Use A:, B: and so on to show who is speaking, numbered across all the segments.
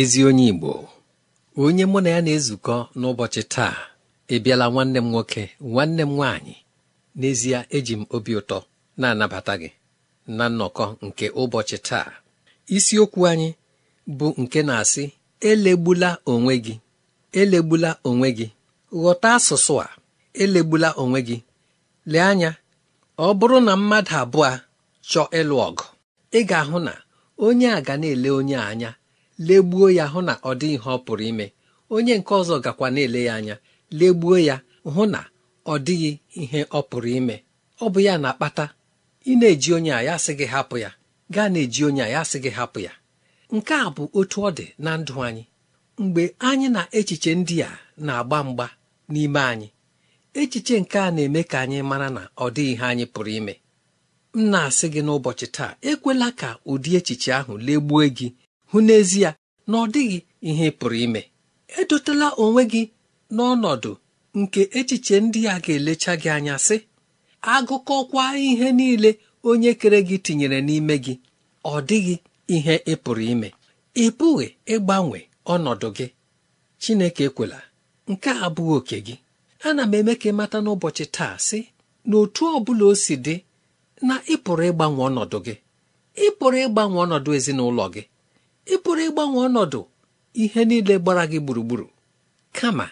A: ezi onye Igbo onye mụ na ya na-ezukọ n'ụbọchị taa ịbịala nwanne m nwoke nwanne m nwaanyị n'ezie eji m obi ụtọ na-anabata gị na nnọkọ nke ụbọchị taa isiokwu anyị bụ nke na-asị elegbula onwe gị elegbula onwe gị ghọta asụsụ a elegbula onwe gị lee anya ọ bụrụ na mmadụ abụọ chọọ ịlụ ọgụ ị ga-ahụ na onye a ga na-ele onye anya legbuo ya hụ na ọ dị ihe ọ pụrụ ime onye nke ọzọ gakwa na-ele ya anya legbuo ya hụ na ọ dịghị ihe ọ pụrụ ime ọ bụ ya na-akpata ị na-eji onye a ya sị gị hapụ ya gaa na-eji onye a ya sị gị hapụ ya nke a bụ otu ọ dị na ndụ anyị mgbe anyị na echiche ndị a na-agba mgba n'ime anyị echiche nke a na-eme ka anyị mara na ọ dịghị ihe anyị pụrụ ime m na-asị gị n'ụbọchị taa ekwela ka ụdị echiche ahụ legbuo gị hụ n'ezie na ọ dịghị ihe pụrụ ime edotela onwe gị n'ọnọdụ nke echiche ndị a ga-elecha gị anya sị agụkọkwa ihe niile onye kere gị tinyere n'ime gị ọ dịghị ihe ị pụrụ ime ị pụghị ịgbanwe ọnọdụ gị Chineke ekwela nke a abụghị oke gị ana m eme ka ị mata n'ụbọchị taa sị na otu ọ bụla o si dị na ịpụrụ ịgbanwe ọnọdụ gị ịpụrụ ịgbanwe ọnọdụ ezinụlọ gị ị pụrụ ịgbanwe ọnọdụ ihe niile gbara gị gburugburu kama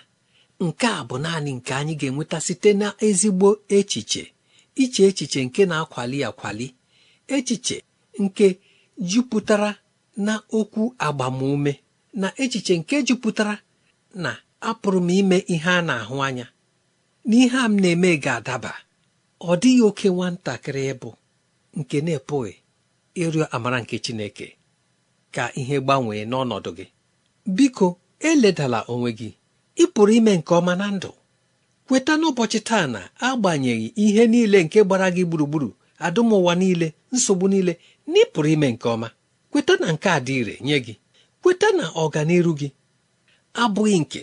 A: nke a bụ naanị nke anyị ga-enweta site na ezigbo echiche iche echiche nke na-akwali akwali echiche nke jupụtara na okwu agbamume na echiche nke jupụtara na apụrụ m ime ihe a na-ahụ anya na ihe a m na-eme ga-adaba ọ dịghị oke nwatakịrị ịbụ nke na-epụghị ịrịọ amara nke Chineke ka ihe gbanwee n'ọnọdụ gị biko eledala onwe gị ị pụrụ ime nke ọma na ndụ kweta n'ụbọchị taa na agbanyeghị ihe niile nke gbara gị gburugburu adụmụwa niile nsogbu niile na ị pụrụ ime nke ọma kweta na nke a dị ire nye gị kweta na ọganiru gị abụghị nke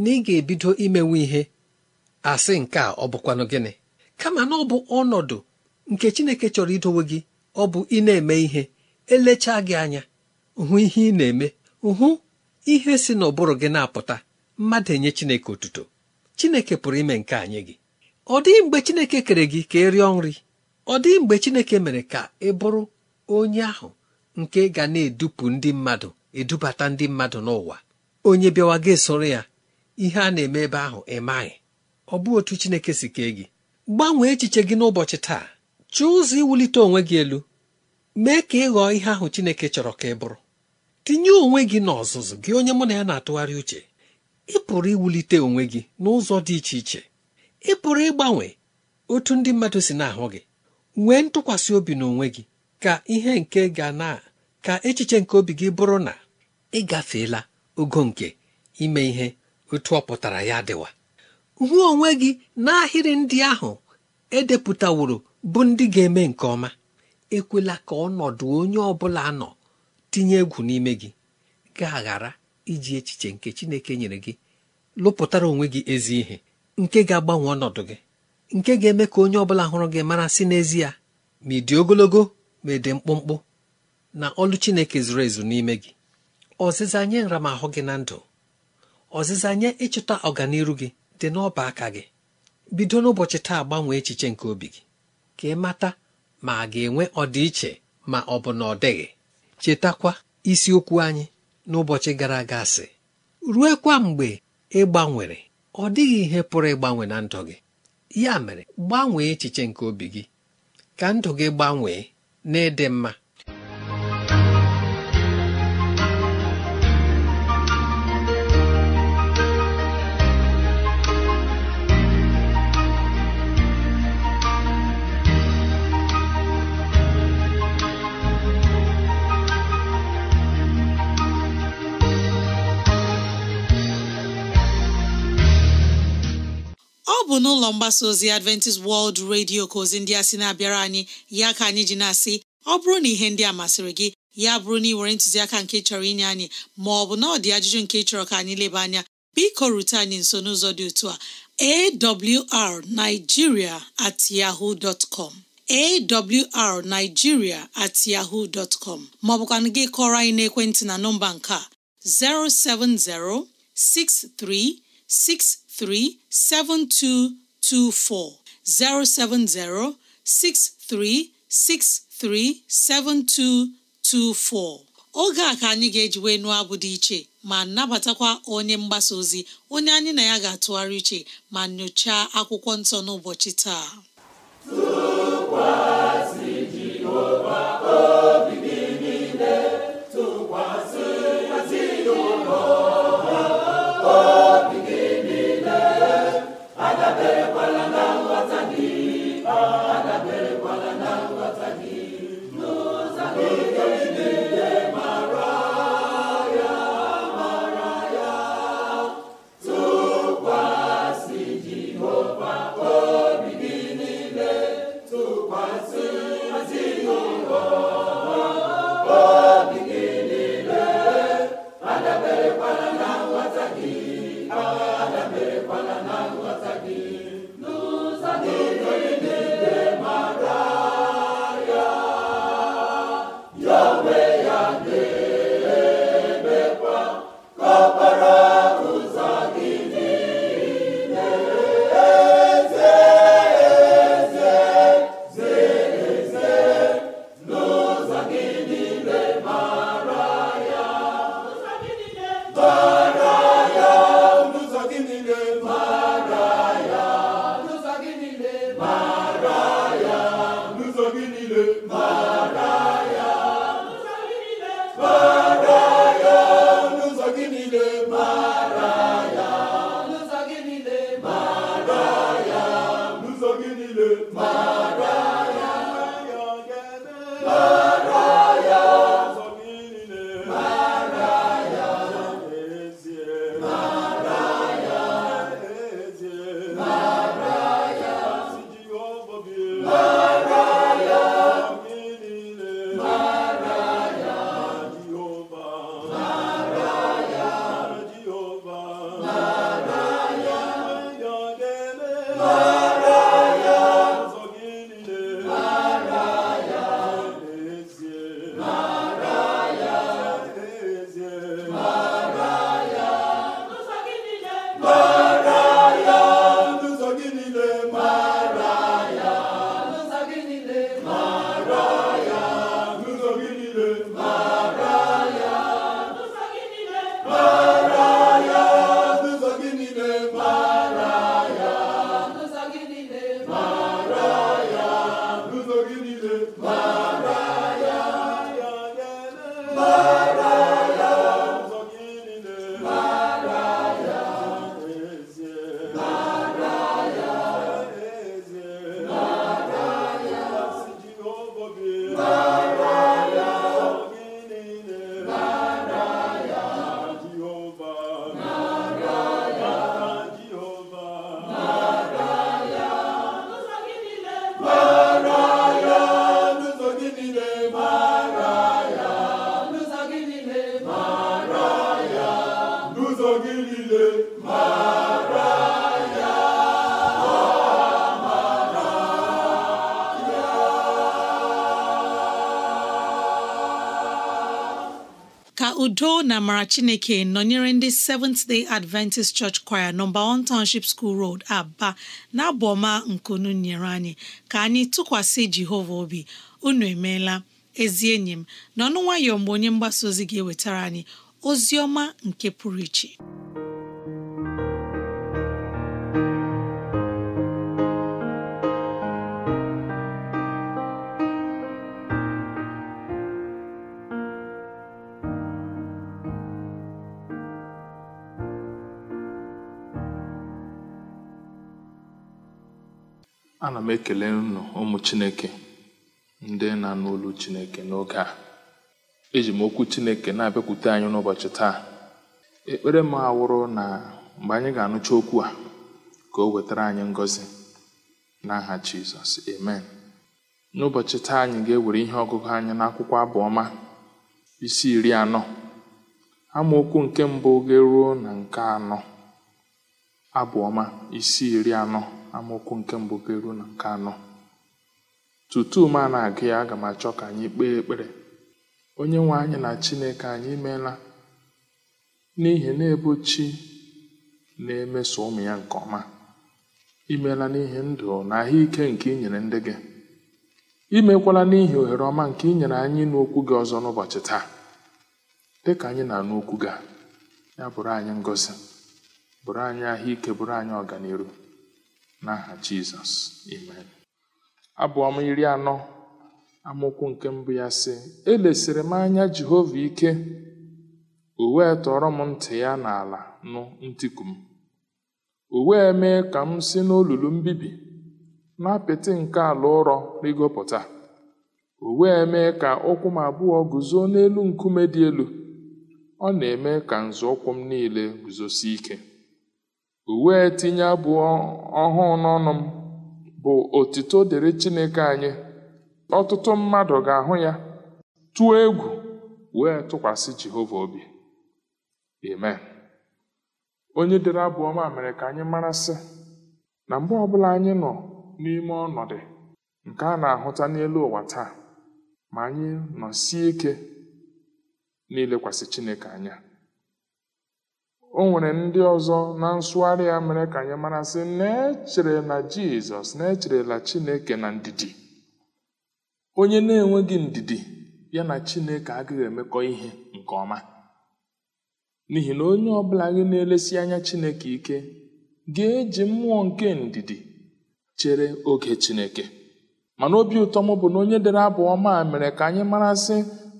A: na ị ga-ebido imenwe ihe asị nke a ọ bụkwanụ gịnị kama na ọ bụ ọnọdụ nke Chineke chọrọ idowe gị ọ bụ ị na-eme ihe elechaa gị anya hụ ihe ị na-eme hụ ihe si n'ụbụrụ gị na-apụta mmadụ enye Chineke otuto Chineke pụrụ ime nke anyị gị ọ dịghị mgbe Chineke kere gị ka ị rịọ nri ọ dịghị mgbe Chineke mere ka ị bụrụ onye ahụ nke ga na-edupụ ndị mmadụ edubata ndị mmadụ n'ụwa onye bịawa gị soro ya ihe a na-eme ebe ahụ ị maghị ọ bụ otu Chineke si kee gị gbanwee echiche gị n'ụbọchị taa Chụọ ụzọ iwulite onwe gị elu mee ka ị ghọọ ihe ahụ Chineke chọrọ ka ị bụrụ tinye onwe gị n'ọzụzụ gị onye mụ na ya na-atụgharị uche ị pụrụ iwulite onwe gị n'ụzọ dị iche iche ị pụrụ ịgbanwe otu ndị mmadụ si na-ahụ gị nwee ntụkwasị obi n'onwe gị ka ihe nke ga na ka echiche nke obi gị bụrụ na ị gafeela ogo nke ime ihe otu ọ pụtara ya dịwa hụ onwe gị n'ahịrị ndị ahụ edepụtaworo bụ ndị ga-eme nke ọma ekwela ka ọnọdụ onye ọ bụla nọ tinye egwu n'ime gị ga-aghara iji echiche nke Chineke nyere gị lụpụtara onwe gị ezi ihe nke ga-agbanwe ọnọdụ gị nke ga-eme ka onye ọbụla hụrụ gị mara si n'ezie ma ị dị ogologo ma ị dị mkpụmkpụ na ọlụ Chineke zuru ezu n'ime gị ọzịza nye nramahụ gị na ndụ ọzịza nye ịchụta ọganiru gị dị n'ọba aka gị bido n'ụbọchị taa gbanwee echiche nke obi gị ka ị mata ma a ga-enwe ọdịiche ma ọ bụ na ọ dịghị chetakwa isiokwu anyị n'ụbọchị gara aga sị ruekwa mgbe ị gbanwere ọ dịghị ihe pụrụ ịgbanwe na ndụ gị ya mere gbanwee echiche nke obi gị ka ndụ gị gbanwee na n'ịdị mma
B: mgbasa ozi Adventist World Radio ka ozi ndị a sị na-abịara anyị ya ka anyị ji na-asị ọ bụrụ na ihe ndị a masịrị gị ya bụrụ na ị were ntụziaka nke chọrọ inye anyị ma ọ bụ na ọ dị ajụjụ nke chọrọ ka anyị leba anya biko rute anyị nso n'ụzọ dị otu a awrnigeria at yahoo dot com awrnigeria at yahoo dot com gị kọrọ anyị n'ekwentị na nọmba nke a 070 6363 72 224 070 7224 oge a ka anyị ga-eji wee nụọ abụ dị iche ma nabatakwa onye mgbasa ozi onye anyị na ya ga-atụgharị iche ma nyochaa akwụkwọ nsọ n'ụbọchị taa obi. ka udo na amara chineke nọnyere ndị Seventh Day Adventist Church Choir nọmba 1 Township School Road Aba na abụ ọma nkunu nyere anyị ka anyị tụkwasị Jehova obi unu emeela ezi enyi m na ọnụ nwayọọ mgbe onye mgbasa ozi ga-ewetara anyị ozi ọma nke pụrụ iche
C: ana m ekele unu ụmụ chineke ndị na-anụ chineke n'oge a eji m okwu chineke na-abịakwute anyị n'ụbọchị taa ekpere m awụrụ na mgbe anyị ga-anụcha okwu a ka o wetara anyị na n'aha jizọs amen n'ụbọchị taa anyị ga-ewere ihe ọgụgụ anyị n'akwụkwọ abụọma isi iri anọ amaokwu nke mbụ ga-eruo na nke anọ abụọma isi iri anọ amaokwu nke mbụ ga eruo na nke anọ tutu m a na-agụ ya aga m achọ ka anyị kpee ekpere onye nwe anyị na chineke anyị meela n'ihi na ebo chi na-emeso ụmụ ya nke ọma imeela n'ihi ndụ na ahụike nke i nyere ndị gị imekwala n'ihi ohere ọma nke inyere nyere anyị n'okwu gị ọzọ n'ụbọchị taa dị ka anyị na n'okwu gị ya bụrụ anyị ngozi bụrụ anyị ahụike bụrụ anyị ọganiru n'aha Jizọs amen m iri anọ amụkwụ nke mbụ ya sị elesiri m anya Jehova ike o wee tọrọ m ntị ya n'ala nụ ntiku m o wee mee ka m si n'olulu mbibi na apịtị nke ala ụrọ rigopụta o wee mee ka ụkwụ m abụọ guzo n'elu nkume dị elu ọ na-eme ka nzọụkwụ m niile guzosi ike uwe tinye abụọ ọhụụ n'ọnụ m bụ otito dịrị Chineke anyị ọtụtụ mmadụ ga-ahụ ya tụọ egwu wee tụkwasị Jehova obi amen onye dere abụọ ma mere ka anyị mara na mgbe ọbụla anyị nọ n'ime ọnọdụ nke a na-ahụta n'elu ụwa taa ma anyị nọsie ike n'ilekwasị Chineke anya o nwere ndị ọzọ na nsụgharị ya mere ka anyị mara sị na echere na jizọs na-echerela chineke na ndidi onye na-enweghị ndidi ya na chineke agaghị emekọ ihe nke ọma n'ihi na onye ọbụla gị na-elesi anya chineke ike ga-eji mmụọ nke ndidi chere oge chineke mana obi ụtọ m bụ na onye dere abụ ọma mere ka anyị mara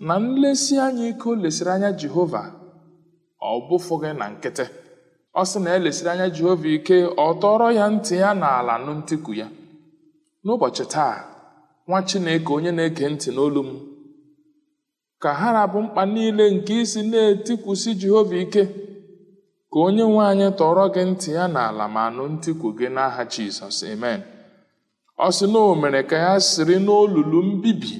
C: na nlesi anya ike o lesiri anya jehova ọ bụfụghị na nkịtị ọ sị na elesiri anya jehova ike ọ tọrọ ya ntị ya n'ala ala ntiku ya n'ụbọchị taa nwa chineke onye na eke ntị n'olu m ka ha rabụ mkpa niile nke isi na-etikwusi jehova ike ka onye nwe anyị tọrọ gị ntị ya n'ala ma nụ ntikwu gị n'aha jizọs amen ọ sị na o mere ka ya siri n'olulu mbibi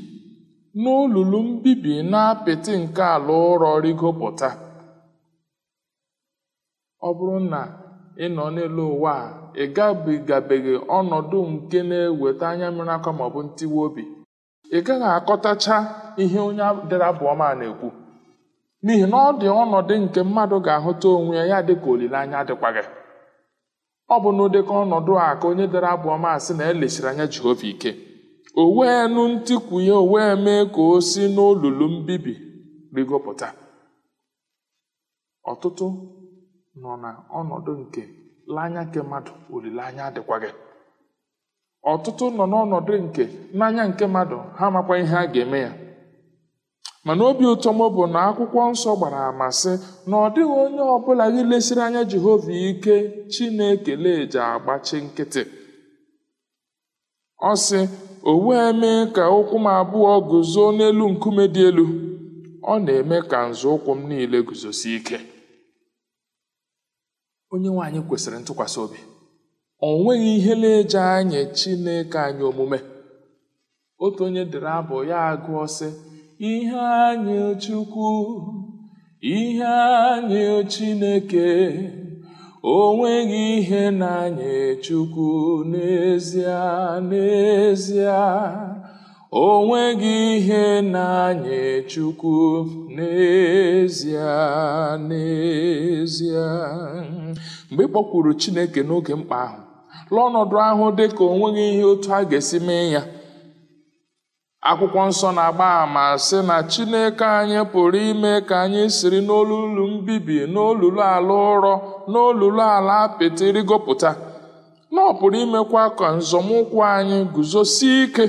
C: n'olulu mbibi na apịtị nke ala ụrọ rigopụta ọ bụrụ na ị nọ n'elu ụwa a ị gabigabeghị ọnọdụ nke na-eweta anya mmiri aka maọbụ ntiwa obi ị gaghị akọtacha ihe onye dere abụọma na-ekwu n'ihi na ọ dị ọnọdụ nke mmadụ ga-ahụta onwe ya ya dịka olileanya gị. ọ bụ n'ụdịka ọnọdụ a ka onye dere abụọma sị na elechiri anya Jehova ike o wee nụ ntikwu ya o wee mee ka o si n'olulu mbibi rigopụta ọtụtụ nọ na ọnọdụ nke n'anya nke mmadụ olileanya adịkwaghị ọtụtụ nọ n'ọnọdụ nke n'anya nke mmadụ ha amakwa ihe a ga-eme ya mana obi ụtọ m bụ na akwụkwọ nsọ gbara ama sị na ọ dịghị onye ọbụla gị lesiri anya Jehova ike Chinekele eji agbachi nkịtị ọ sị o wee mee ka ụkwụ m abụọ guzo n'elu nkume dị elu ọ na-eme ka nzọụkwụ m niile guzosi ike onye nwanyị kwesịrị ntụkwasị obi o nweghị ihe na-eje anya chineke anyị omume otu onye dere abụ ya agụọ sị ihe anyị chukwu ihe anyị chineke o nweghị ihe na anyị chukwu n'ezie n'ezie O nweghị ihe na-anye Chukwu n'ezie n'ezie mgbe ị kpọkwuru Chineke n'oge mkpa ahụ lụọ ọnọdụ ahụ dị ka o ihe otu a ga-esi mee ya akwụkwọ nsọ na-agba àmà sị na Chineke anyị pụrụ ime ka anyị siri n'olulu mbibi n'olulu ala ụrọ n'olulu ala apịtị rigopụta na ọ pụrụ imekwa ka nzọmụkwụ anyị guzosie ike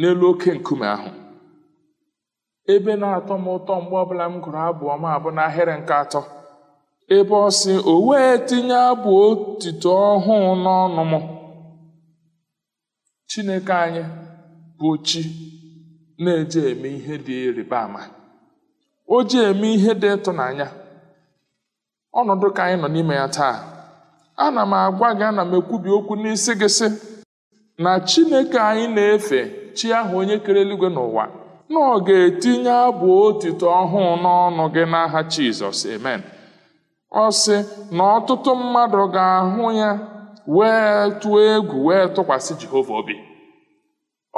C: n'elu oke nkume ahụ ebe na-atọ m ụtọ mgbe ọbụla m gụrụ abụọ m abụ n'ahịrị nke atọ ebe ọ sị o wee tinye abụ otito ọhụụ n'ọnụ m chineke anyị bụ chi na-eje eme ihe dị ịrịba ama o ji eme ihe dị ịtụnanya ọnọdụ ka anyị nọ n'ime ya taa ana m agwa gị ana m ekwubi okwu n'isi gị sị na chineke anyị na-efe chi ahụ onye kere eluigwe n'ụwa na ọ ga-etinye abụ otito ọhụụ n'ọnụ gị n'aha Jizọs amen ọ sị na ọtụtụ mmadụ ga-ahụ ya wee tụọ egwu wee tụkwasị Jehova obi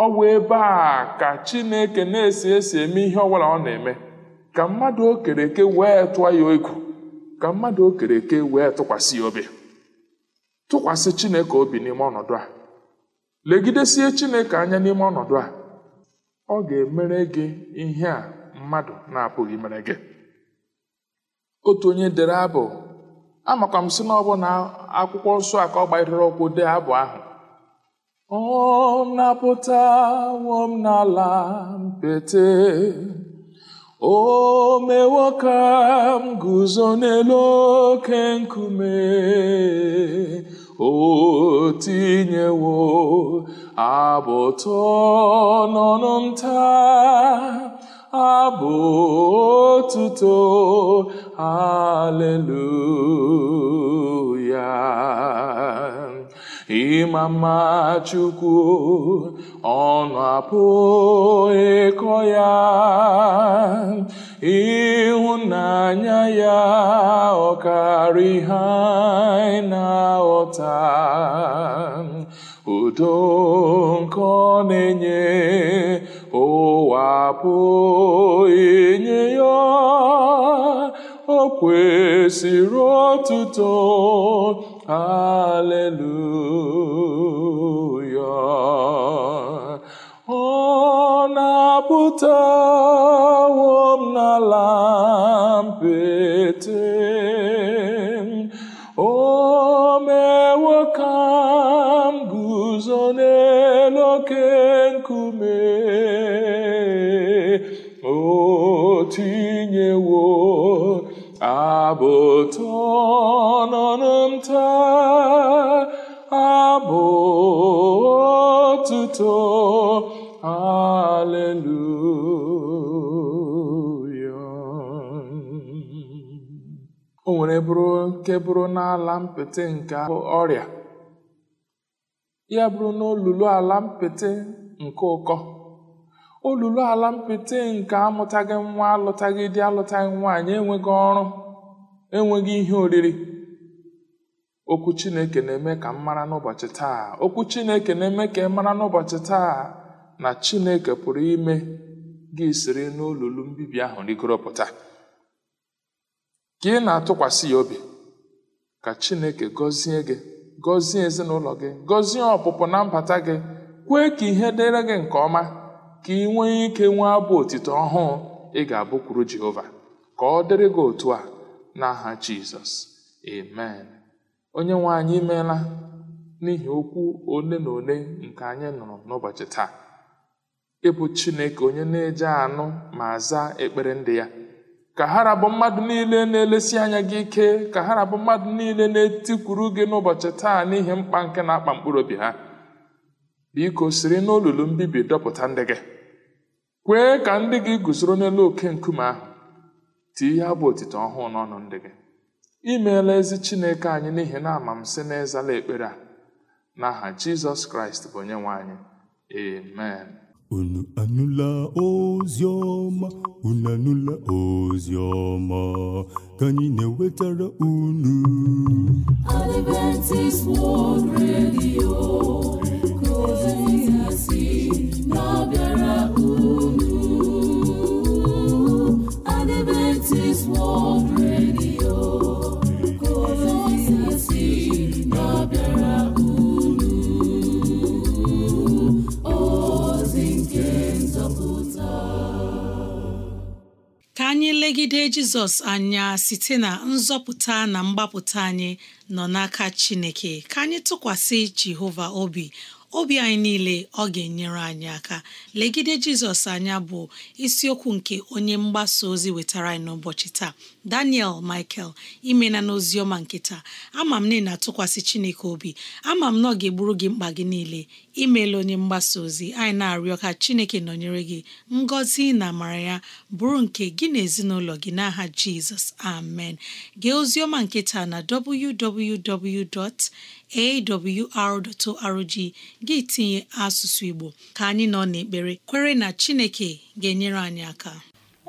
C: ọ bụ ebe a ka Chineke na-esi esi eme ihe ọbụla ọ na-eme ka mmadụ okereke wee tụọ ya egwu ka mmadụ okere eke wee tụkwasị ya obi tụkwasị Chineke obi n'ime ọnọdụ a Legidesie Chineke anya n'ime ọnọdụ a ọ ga-emere gị ihe a mmadụ na-apụghị mere gị otu onye dere abụ amakwa m si na ọ na akwụkwọ nsọ aka ka ọ gbanyere ụkwụ dee abụ ahụ ọ napụtawo m n'ala mpete o mewo ka m guzo n'elu oke nkume o tinyewo abụtọ n'ọnụ nta abụ otuto aleluya ịma mma Chukwu ọnụ apụghịkọ ịkọ ya ịhụnanya ya ọkarị ha na-aghọta udo nke ọ na-enye ụwa apụghị ya o kwesịrị otuto Aleluya ọ na-apụtawo m n'ala mbite otuto aleluya o nwere bụrụ nke bụrụ n'ala mpete nke ọrịa ya bụrụ n'olulu ala mpịtị nke ụkọ olulu ala mpịtị nke amụtaghị nwa alụtaghị di alụtaghị nwaanyị enweghị ọrụ enweghị ihe oriri okwu chineke na-eme ka m mara n'ụbọchị taa okwu chineke na-eme ka ị mara n'ụbọchị taa na chineke pụrụ ime gị siri n'olulu mbibi ahụ rigoro pụta ka ị na-atụkwasị ya obi ka chineke gọzie gị gọzie ezinụlọ gị gọzie ọpụpụ na mbata gị kwee ka ihe dịrị gị nke ọma ka ị nwee ike nwee abụ otito ọhụụ ị ga-abụkwuru jehova ka ọ dịrị gị otu a n'aha jizọs amen Onyenwe anyị imeela n'ihi okwu ole na ole nke anyị nụrụ n'ụbọchị taa. ịbụ Chineke onye na-eje anụ ma zaa ekpere ndị ya. Ka ha rabụ mmadụ niile na-elesi anya gị ike, ka ha rabụ mmadụ niile na-etikwuru gị n'ụbọchị taa n'ihi mkpa nke na-akpa mkpụrụ obi ha. Biko siri n'olulu mbibi dọpụta ndị gị. Kwee ka ndị gị guzoro n'elu oke nkume ahụ. Tie ya bụ otito ọhụụ n'ọnụ ndị gị. I meela ezi Chineke anyị n'ihi na amamsị m na ekpere a n'aha Jizọs Kraịst bụ onye nwe anyị amen unu anụla
D: ozi ọma unu anụla ozi ọma ka anyị na-ewetara unu Adventist World Radio ka ozi na-abịara
B: jizọs anya site na nzọpụta na mgbapụta anyị nọ n'aka chineke ka anyị tụkwasị jehova obi obi anyị niile ọ ga-enyere anyị aka legide jizọs anya bụ isiokwu nke onye mgbasa ozi wetara anyị n'ụbọchị taa daniel michael imena n'ozi ọma nke taa ama m na na-atụkwasị chineke obi ama m na ọ ga-egburu gị mkpa gị niile imeela onye mgbasa ozi anyị na-arịọ ka chineke nọnyere gị ngọzi na amara ya bụrụ nke gị na ezinụlọ gị n'aha jizọs amen gee ozioma ọma nke na www.awr.org gị tinye asụsụ igbo ka anyị nọ n'ekpere kwere na chineke ga-enyere anyị aka